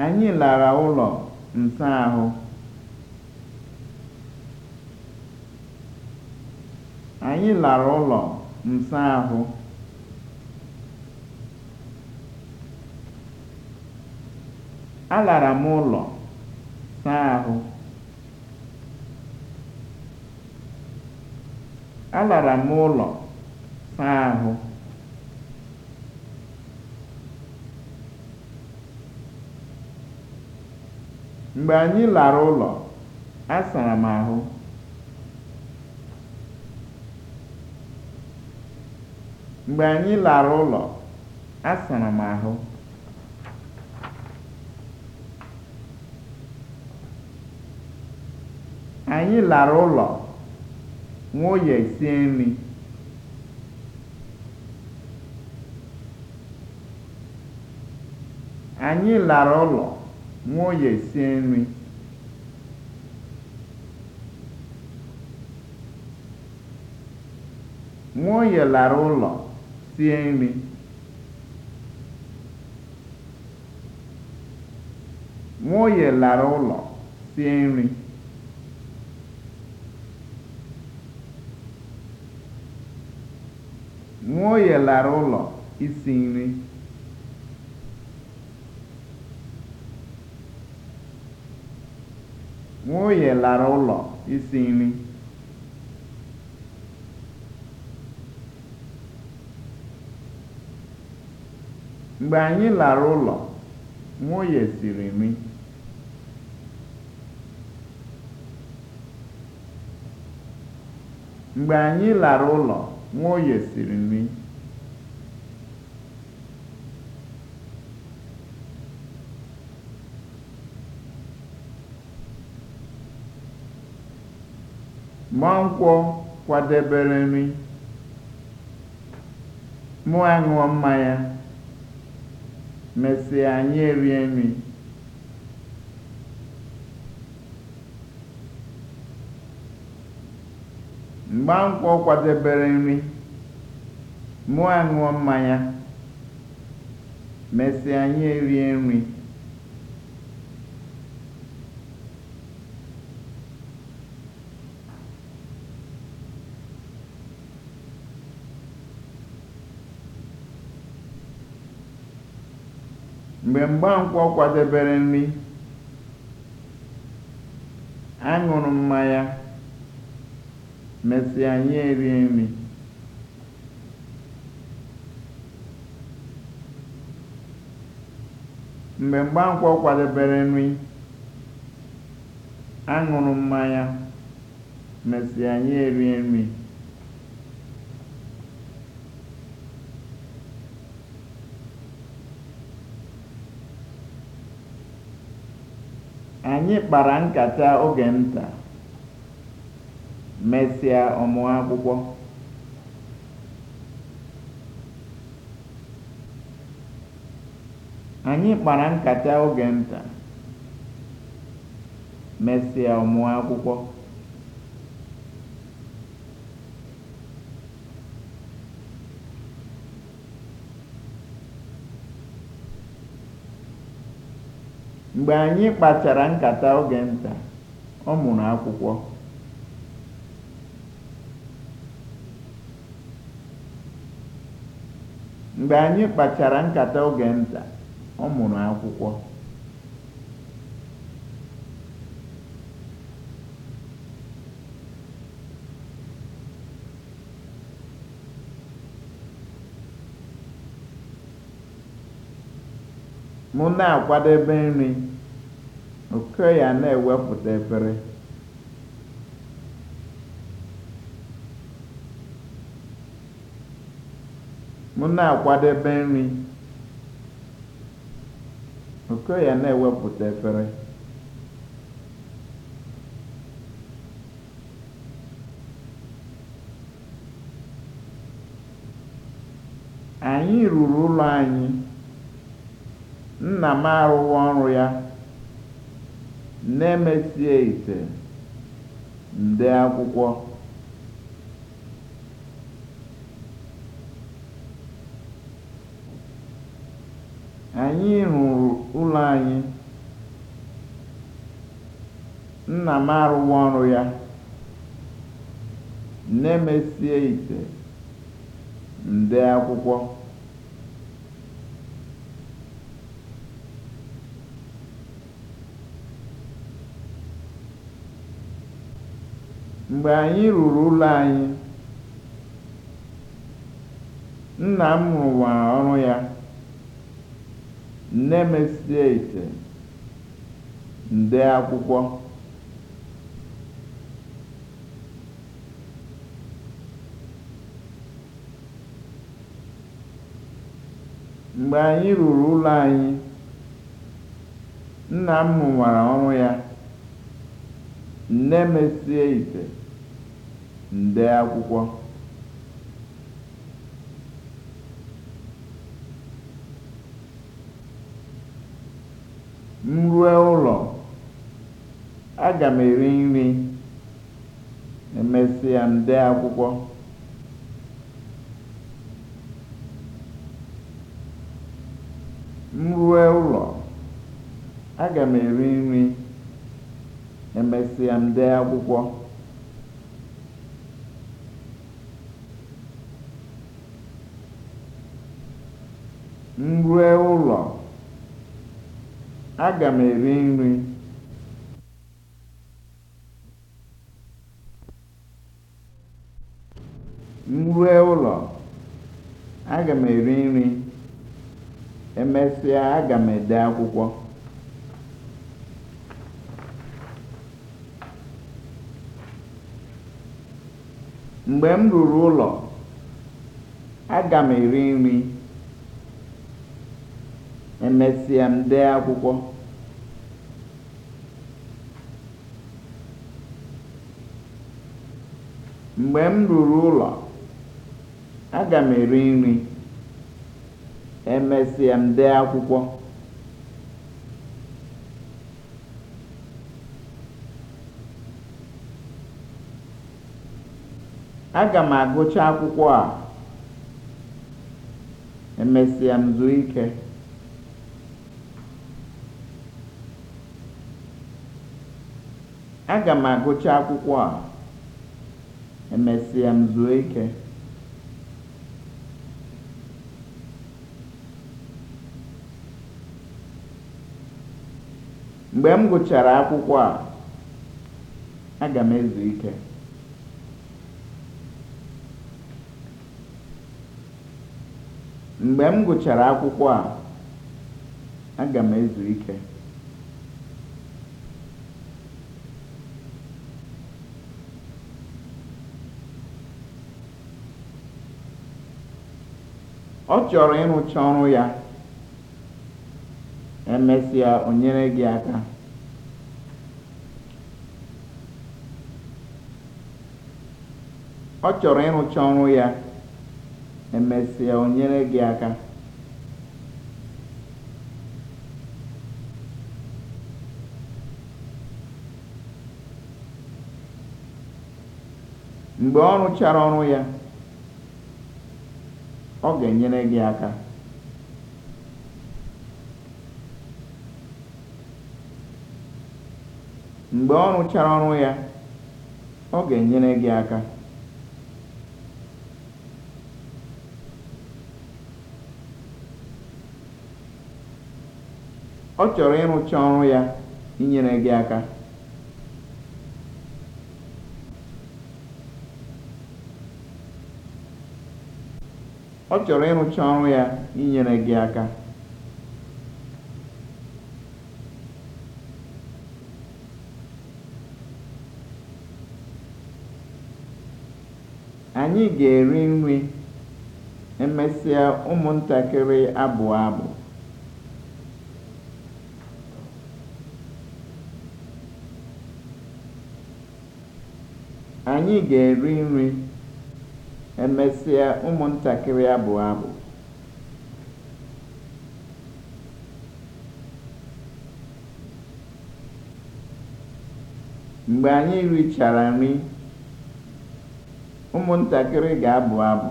Anyị lara ụlọ nsahụ. Alara m ụlọ saa ahụ. Alara m ụlọ saa ahụ. Mgbe anyị lara ụlọ, a sara m ahụ. Mgbe anyị lara ụlọ, a sara m ahụ. Anyị lara ụlọ, sie nri. Anyị lara ụlọ. nwa oye sie nri nwa oye lara ụlọ sie nri nwa oye lara ụlọ sie nri nwa oye lara ụlọ isi nri Nwunye lara ụlọ isi nri. Mgbe anyị lara ụlọ, nwunye siri nri. Mgbe anyị lara ụlọ, nwunye siri nri. Nwankwọ kwadebere nri, mụ aṅụọ mmanya, mesịa anyị erie Mgbankwọ kwadebere nri, mụ aṅụọ mmanya, mesịa anyị erie nri. mgbe Mgbankwọ kwadebere nri, aṅụrụ mmanya, mesịa anyị erie nri. kwadebere nri, aṅụrụ mmanya, mesịa anyị erie nri. Anyị kpara nkata oge nta, mesịa ọ kpara nkata oge nta, mesịa akwụkwọ. Mgbe anyị kpachara nkata oge nta, ọ mụrụ akwụkwọ. Mgbe anyị kpachara nkata oge nta, ọ mụrụ akwụkwọ. na-akwadebe nri. oke ya na-ewepụta efere m na-akwadebe nri oke ya na-ewepụta efere anyị ruru ụlọ anyị nna m arụghị ọrụ ya na ite nde akwụkwọ anyị rụrụ ụlọ anyị nna m arụwa ọrụ ya na-emesie ite nde akwụkwọ Mgbe anyị ruru ụlọ anyị, nna m rụwara ọrụ ya, nne m esie ite, m akwụkwọ. Mgbe anyị ruru ụlọ anyị, nna m rụwara ọrụ ya, nne m esie ite. nde akwụkwọ m rue ụlọ aga m eri nri emesịa m akwụkwọ eri nri emesịa nde akwụkwọ m rue ụlọ, aga m eri nri. m rue ụlọ, aga m eri nri. Emesịa aga m ede akwụkwọ. Mgbe m ruru ụlọ, aga m eri nri. emesịa m dee akwụkwọ mgbe m ruru ụlọ aga m eri nri emesịa m dee akwụkwọ aga m agụcha akwụkwọ a emesịa m zuo ike Aga m agụcha akwụkwọ a, emesịa m zuo ike. Mgbe m gụchara akwụkwọ a, aga m ezu ike. Mgbe m gụchara akwụkwọ a, aga m ezu ike. ọ chọrọ ịrụcha ọrụ ya emesịa o nyere gị aka ọ chọrọ ya emesịa o gị aka mgbe ọ rụchara ọrụ ya ọ ga-enyere gị aka. Mgbe ọ rụchara ọrụ ya, ọ ga-enyere gị aka. Ọ chọrọ ịrụcha ọrụ ya inyere gị aka. ọ chọrọ ịrụcha ọrụ ya inyere gị aka anyị ga-eri nri emesịa ụmụntakịrị abụọ abụ anyị ga-eri nri Emesịa ụmụntakịrị abụọ abụ. Mgbe anyị richara nri, ụmụntakịrị ga-abụ abụ.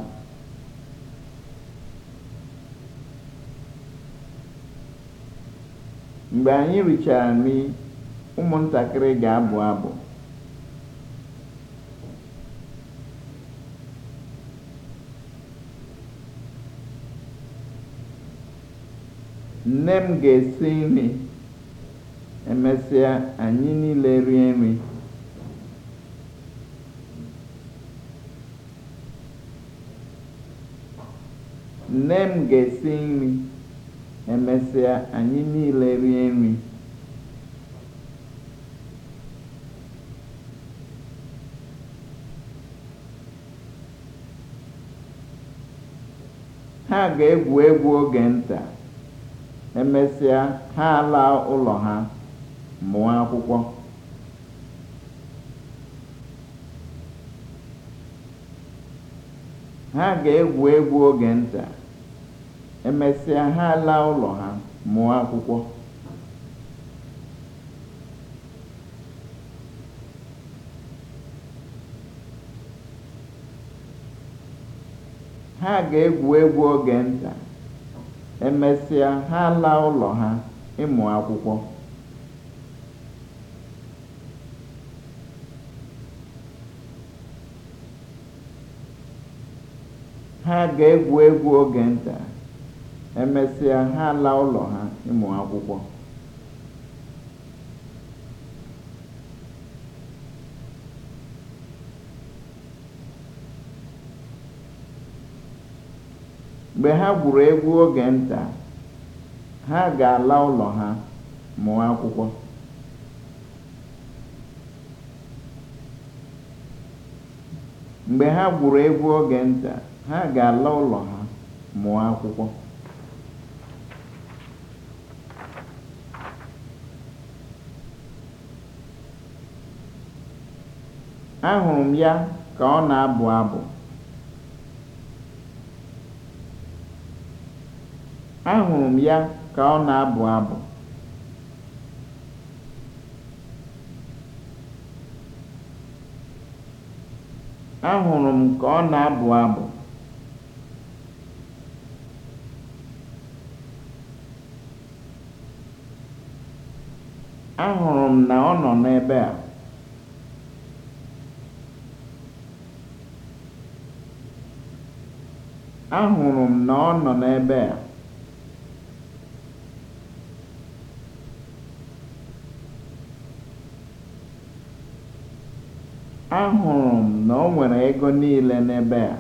Mgbe anyị richara nri, ụmụntakịrị ga-abụ abụ. Nne m ga-esi nri, emesịa anyị niile rie nri. Nne m ga-esi nri, emesịa anyị niile rie nri. Ha ga-egwu egwu oge nta. Emesịa, ha ala ụlọ ha, mụọ akwụkwọ. Ha ga-egwu egwu oge nta. Emesịa, ha ala ụlọ ha, mụọ akwụkwọ. Ha ga-egwu egwu oge nta. Emesịa ha ala ụlọ ha ịmụ akwụkwọ. Ha ga-egwu egwu oge nta, emesịa ha ala ụlọ ha ịmụ akwụkwọ. mgbe ha gwuru egwu oge nta ha ga-ala ụlọ ha mụọ akwụkwọ ga-ala ụlọ ha mụọ akwụkwọ ahụrụ m ya ka ọ na-abụ abụ Ahụrụ m ya ka ọ na-abụ abụ. Ahụrụ m ka ọ na-abụ abụ. Ahụrụ m na ọ nọ n'ebe a. Ahụrụ m na ọ nọ n'ebe a. Ahụrụ m na o nwere ego niile n'ebe a.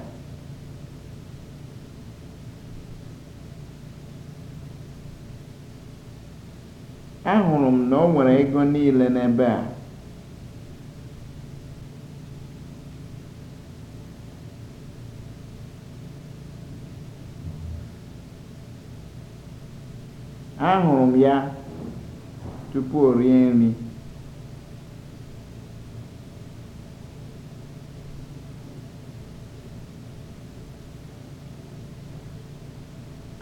Ahụrụ m na o nwere ego niile n'ebe a. Ahụrụ m ya tupu o rie nri.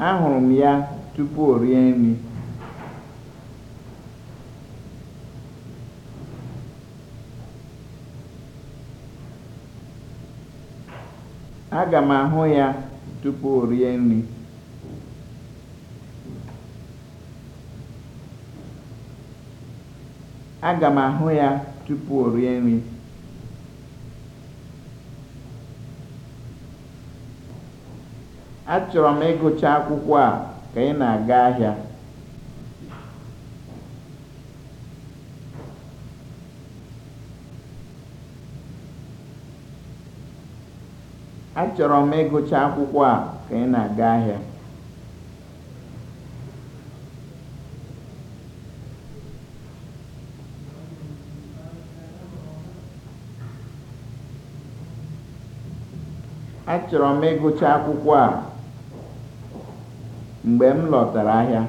Ahụrụ m ya tupu o rie nri. Aga m ahụ ya tupu o rie m ahụ ya tupu o rie nri. achọrọ m ịgụcha akwụkwọ a ka ị na-aga ahịa achọrọ m ịgụcha akwụkwọ a ka ị na-aga ahịa achọrọ m ịgụcha akwụkwọ a mgbe m lọtara ahịa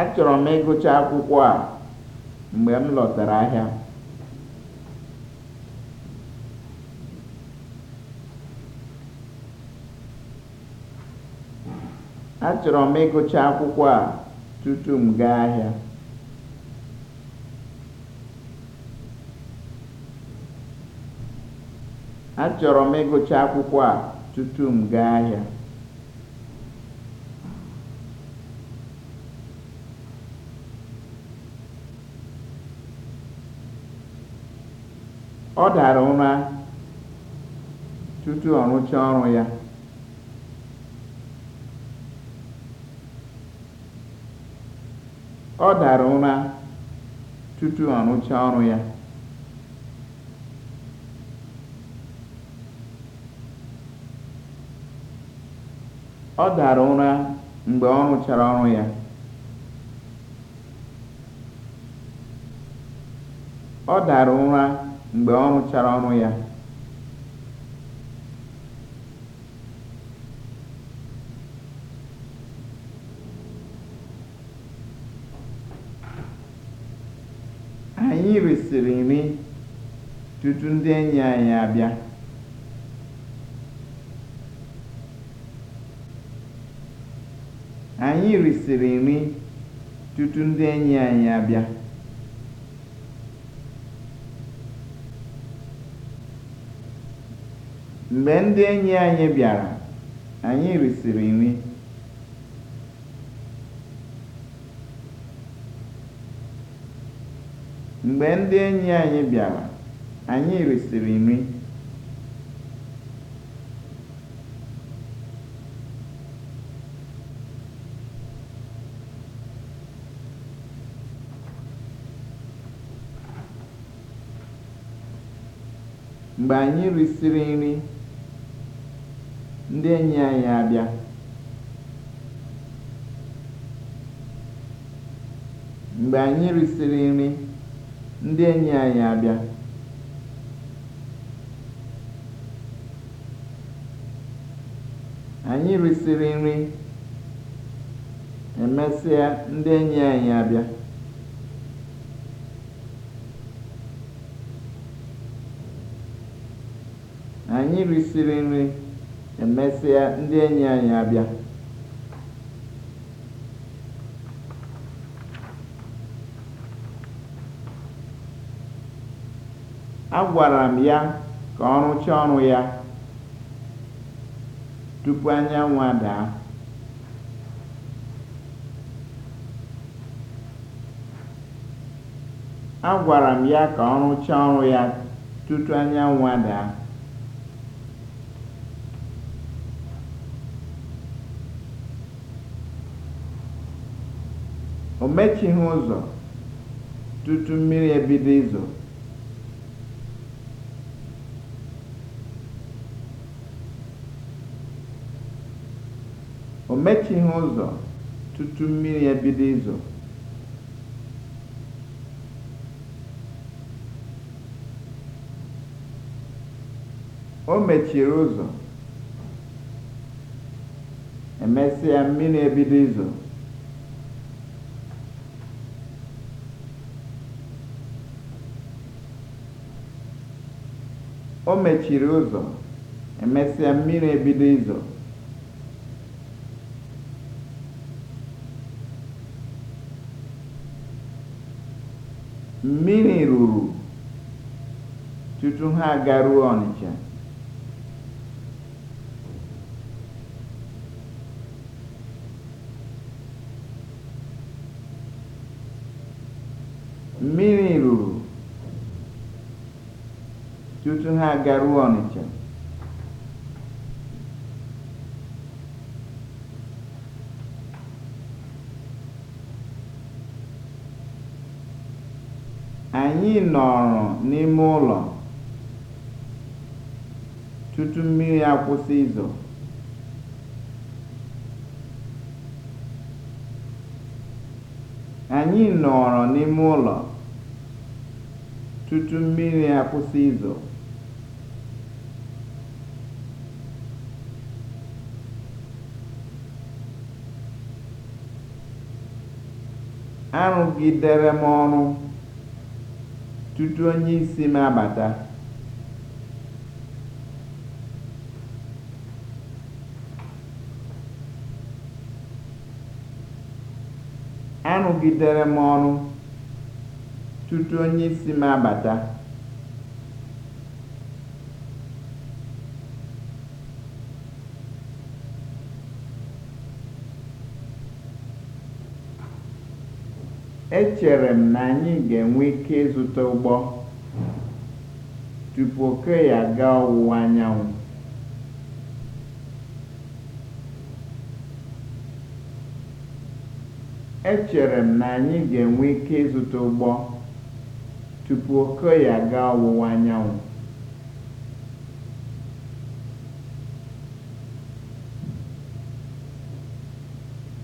achọrọ m ịgụcha akwụkwọ a mgbe m lọtara ahịa achọrọ m ịgụcha akwụkwọ a tutu m gaa ahịa Achọrọ m ịgụcha akwụkwọ a tutu m gaa ahịa. Ọ dara ụra tutu ọ ọrụ ya. Ọ dara ụra tutu ọ rụchaa ọrụ ya. ọ dara ụra mgbe ọ rụchara ọrụ ya ọ dara ụra anyị risịrị nri tutu ndị enyi anyị abịa Anyị risịrị nri tutu ndị enyi anyị abịa. Mgbe ndị enyi anyị bịara, anyị risịrị nri. Mgbe ndị enyi anyị bịara, anyị risịrị nri. Mgbe anyị risịrị nri, ndị enyi anyị abịa. nri, ndị ndị enyi anyị abịa. Anyị risịrị nri, emesịa ndị enyi anyị abịa. Agwara m ya ka ọ rụchaa ọrụ ya tupu anyanwụ adaa. Agwara m ya ka ọ rụchaa ọrụ ya tutu anyanwụ daa o mechighị ụzọ tutu mmiri ebido izo o mechighị ụzọ tutu mmiri ebido izo o mechiri ụzọ emesịa mmiri ebido izo O mechiri ụzọ, emesịa mmiri ebido ịzọ. Mmiri ruru tutu ha agaruo Ọnịcha. tutu ha agaruo Ọnịcha anyị nọrọ n'ime ụlọ tutu mmiri akwụsị izo anyị nọrọ n'ime ụlọ tutu mmiri akwụsị izo arụgidere m ọrụ tutu isi m abata. arụgidere m ọrụ tutu m abata. Echere m na anyị ga-enwe ike ịzụta ụgbọ tupu oke ya aga ọwụwa anyanwụ. Echere m ga ọwụwa anyanwụ.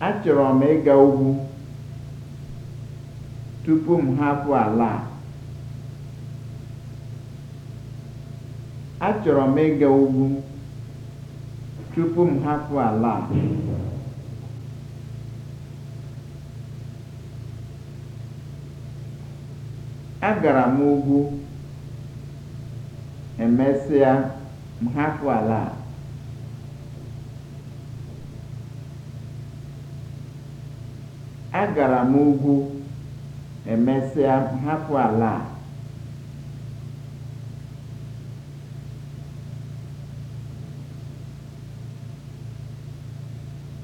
Achọrọ m ịga ugwu. tupu m hapụ ala a achọrọ m ịga ugwu tupu m hapụ ala a agara m ugwu emesịa m hapụ ala a agara m ugwu emesịa hapụ ala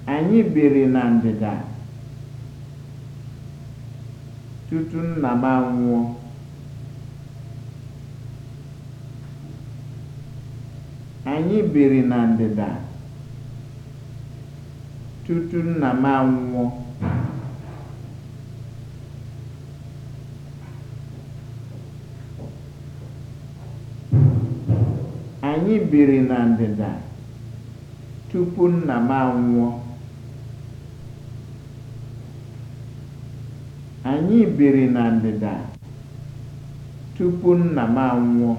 a anyị biri na ndịda tutu nna m anwụọ ndịda tutu nna m anwụọ biri na ndịda tupu nna m anwụọ. Anyị biri na ndịda tupu nna m anwụọ.